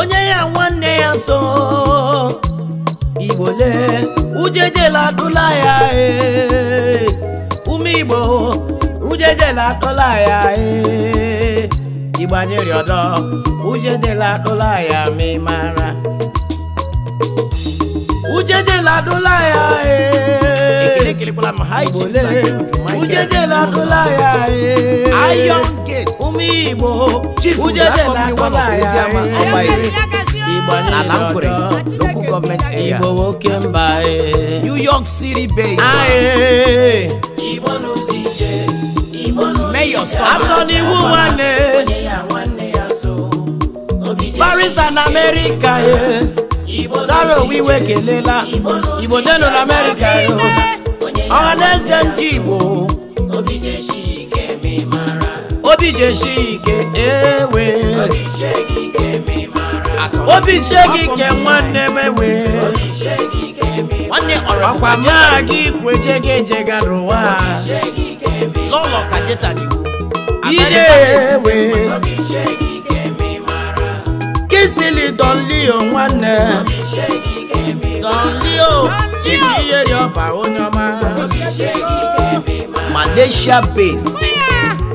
onye ya nwanne ya nso igbo lee ujejela adụla ya ee ume igbo ujejela atụla ya e. igbanyere ọdọ ujejela atụla ya ma ị ujeje la ya ee ujeje la adụla ya ee ụmụ igbo ujeje la adụla ya ee local government area. Igbo nwoke mba New York City based. Igbo n'ozi ije. Igbo n'ozi Mayor Sọba. Atọ n'iwu nwanne. Paris and sara owe iwe kelela igbo denu na amerịka ọha na eze ndị igbo obi jeshi ike ewe obi shegi ike nwanne m ewe nwanne ọrọkwa m aga ikwu ejega ejega n'ụwa n'ụlọ ka jeta dị ire ewe mmiri Don Leo nwanne eh. Don Leo Chief Iyeri Ọba onye oh, ọma Malaysia base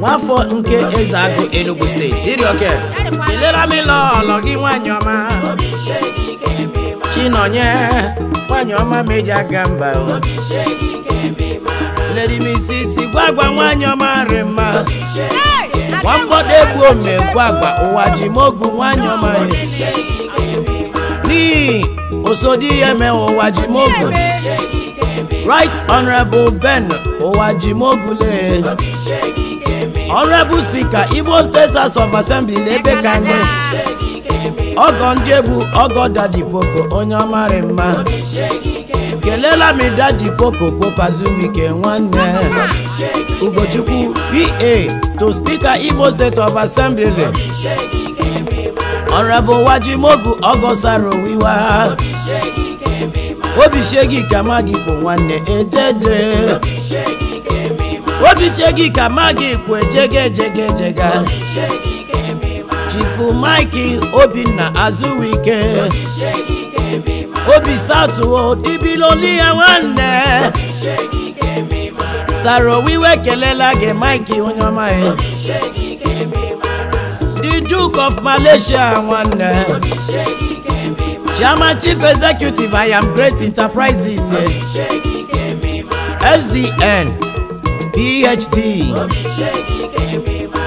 nwafọ nke eze agụ Enugu steeti irioke kelere m ịlọ ọlọ gị nwanyị ọma Chinonye nwanyị ọma meji aga mba oh. Lady Mrs. Igwagwa nwanyị ọma rị mma Wa nwamgbọdọ egbu omegbu agba ụwa ji mogu nwanyọ manyị n'ihi osodi ihe emewe ụwa ji mogu right honorable ben ụwa ji mogule honorable speaker igbo state house of assembly na-ebe ka ọgọ ndị egbu ọgọ dadipoko onye ọmarị mma ekelela m popo koko popazuwike nwanne ugochukwu pa to spika igbo state of assembly honorable wajimogu ogosaro wiwa obisegi ka magị kpo nwanne ejeje obisegi ka magị kpo ejegejegejega chifu mike obinna azuwike obi satuo ya nwanne sarowiwe kelela gị mike onye ọma ya the duke of malaysia nwanne chairman chief executive i am great enterprises sdn phd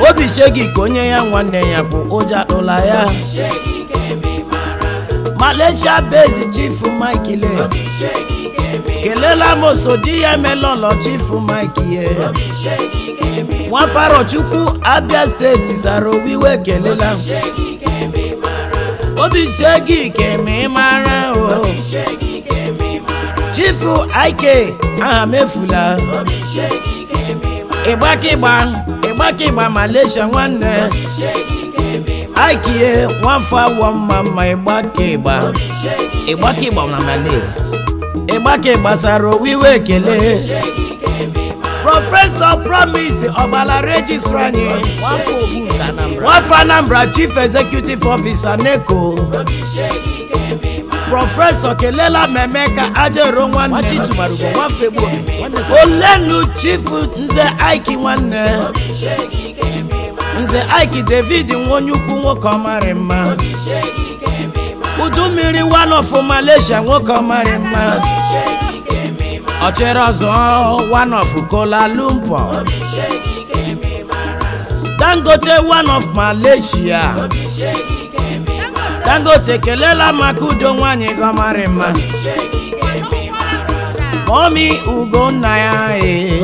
obi shegi ka onye ya nwanne ya bụ ụja ụla ya Malaysia based chief Mike le kelela mosodi ya emelọlọ chief Mike ye nwafaro chukwu Abia steeti zara owiwe kelela obi shegi ke mara o oh. chief Ike aha mefula ịgbakịgba ịgbakịgba Malaysia eh. aikie nwafọ awọ mma mma ịgbaka ịgba ịgbaka ịgba na male ịgbaka ịgbasara owiwe ekele prọfesọ promise ọgbala rejistra anyị nwafọ anambra chief executive officer neko prọfesọ kelela mmemme ka ajero nwanne olenu chief nze aiki nwanne nze Ike David nwenye ukwu nwoke ọmarị mma udu mmiri one of Malaysia nwoke ọmarị mma Ọchịrị ọzọ one of Kola Lumpur Dangote one of Malaysia Dangote kelela maka udo nwanyị gị ọmarị mma omi ugo nna ya ee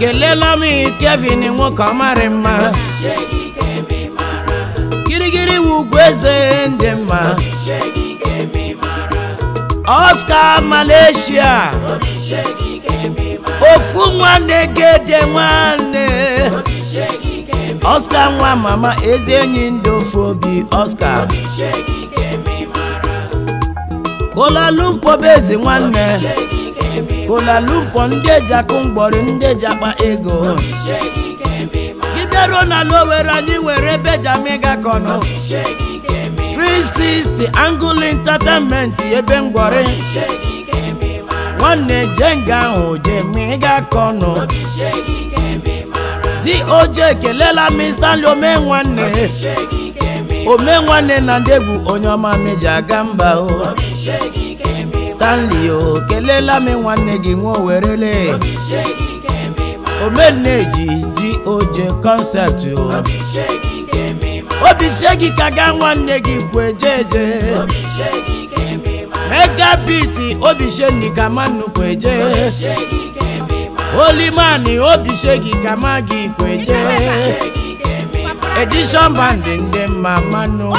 kelela m Kevin nwoke ọmarị mma kirikiri wugwu eze ndị mma Oscar Malaysia ofu nwanne gede nwanne Oscar nwa mama ezi enyi ndị ofu obi Oscar Kuala Lumpur bụ nwanne ụlalumpọ ndị eji akụ mgbọrị ndị eji akpa ego gị bịaruo n'ala Owerri anyị nwere ebe eji ama ịga kọnọ 360 Angle Entertainment ebe ngwọrị nwanne jenga ahụ je ma ịga kọnọ ekelela m Stanley ome nwanne ome nwanne na ndị egwu onye ọma meji aga mba o Stanley o kelela m nwanne gị nwa owerele omeneji ji oje kọnsept o obi sie gị ka gaa nwanne gị kwu eje eje mega biti obi sie gị ka mmanụ kwu eje olimani obi sie gị ka ma gị kwu eje edishọn bandị ndị mma mmanụ kwu